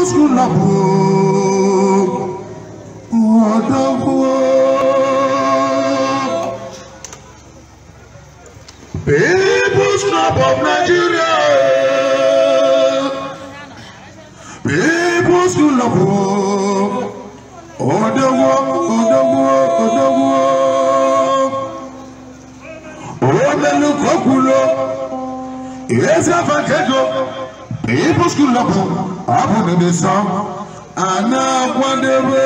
musu labo wadabo. People's Club of Nigeria. People's Club of Odowo, Odowo, Odowo. Omelu Kokulo. Yes, I've a People's Club of I to abụrụ i ịsọ a na-akwadebe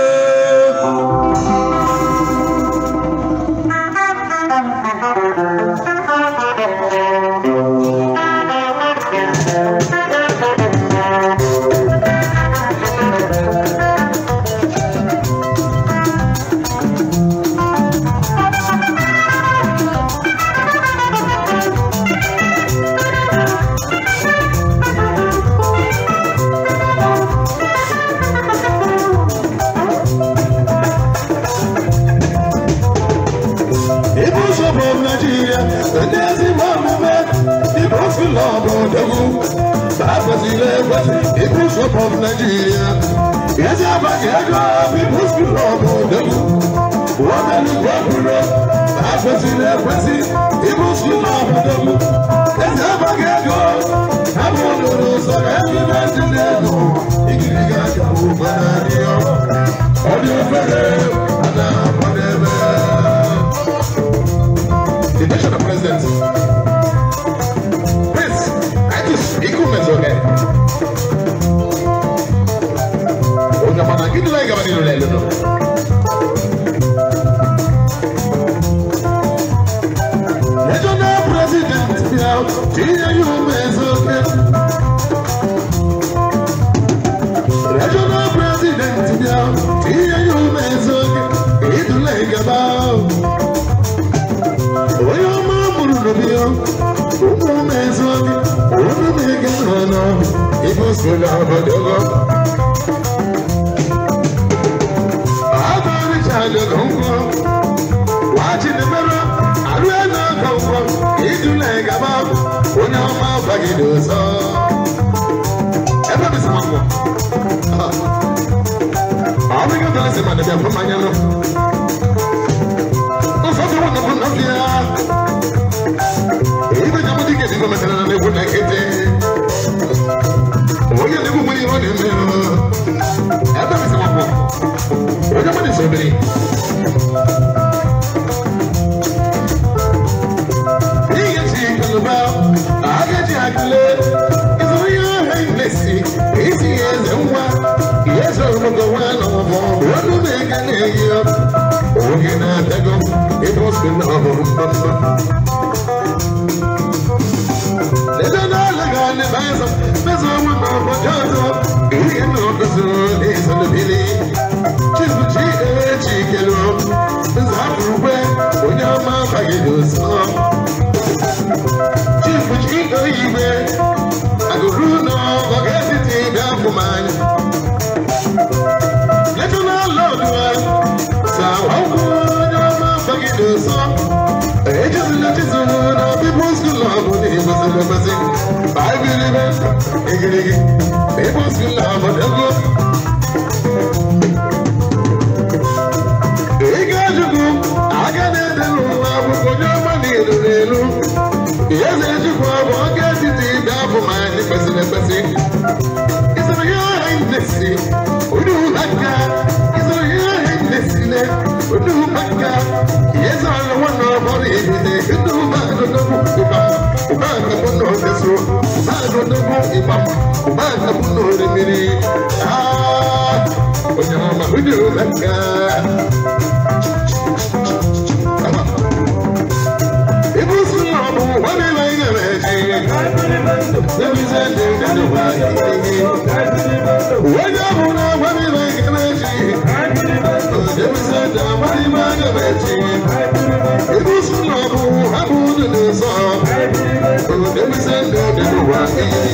Sèdésì máa mú mẹ́, ìbò fi lọ bọ̀dẹ́kù. Bàbẹ̀sì lè wẹ́sì, ìbò sọ̀pọ̀ Nàìjíríà. Yẹ́sì àbàkì ẹjọ́ ìbò fi lọ bọ̀dẹ́kù. Wọ́n tẹ̀lé gbọ́kúrò. Bàbẹ̀sì lè wẹ́sì, ìbò fi lọ bọ̀dẹ́kù. Yẹ́sì àbàkì ẹjọ́ àbọ̀ lòlò sọ̀rọ̀ ẹ̀mí Nàìjíríà nù. Ìgìrì ụmụ ezuobi ụmụme gị nọ n'ọhụ ibe sola obodogo agụrichadogo ngwọ wachidebere arụe na-agọ ngwọ idula gaba onye ọma bagide ọzọ ebe bisama ngwọ ọ bụghị ọbụla si ma dịbịa when they hit the the mini. Ah, when you're on my window, let's go. When I'm on a money like a machine, I can't even tell you. I'm on a money like a machine. I can't even tell you. I'm on a money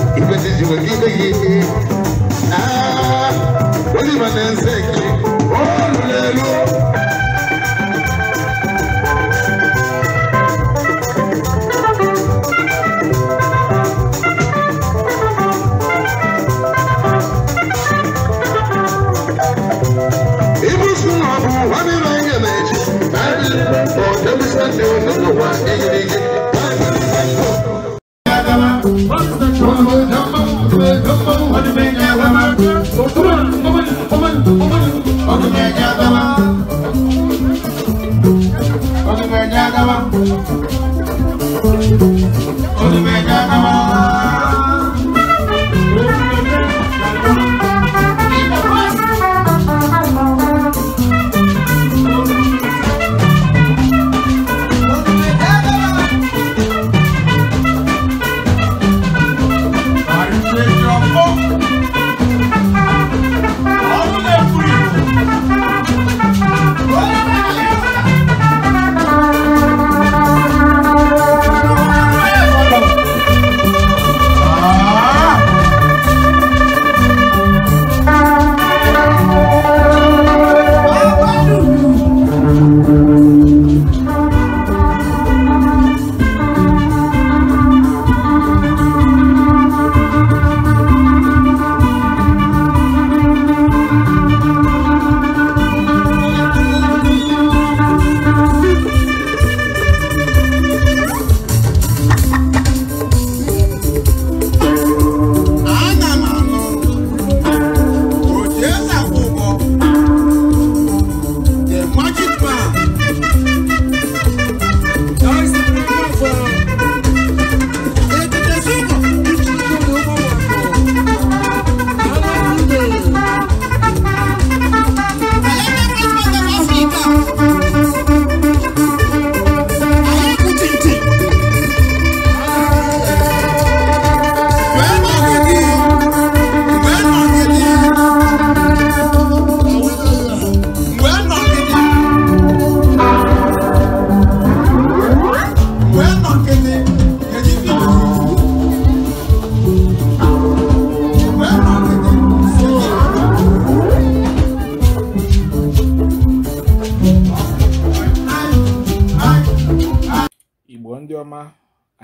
ikwesịzi were ibe gị oliva na-eze gị olulelu ibusu na ọ bụ nwanne na-enye na-eji na ndị ọ debisa ndị onye ụwa eyiri gị I don't Yadava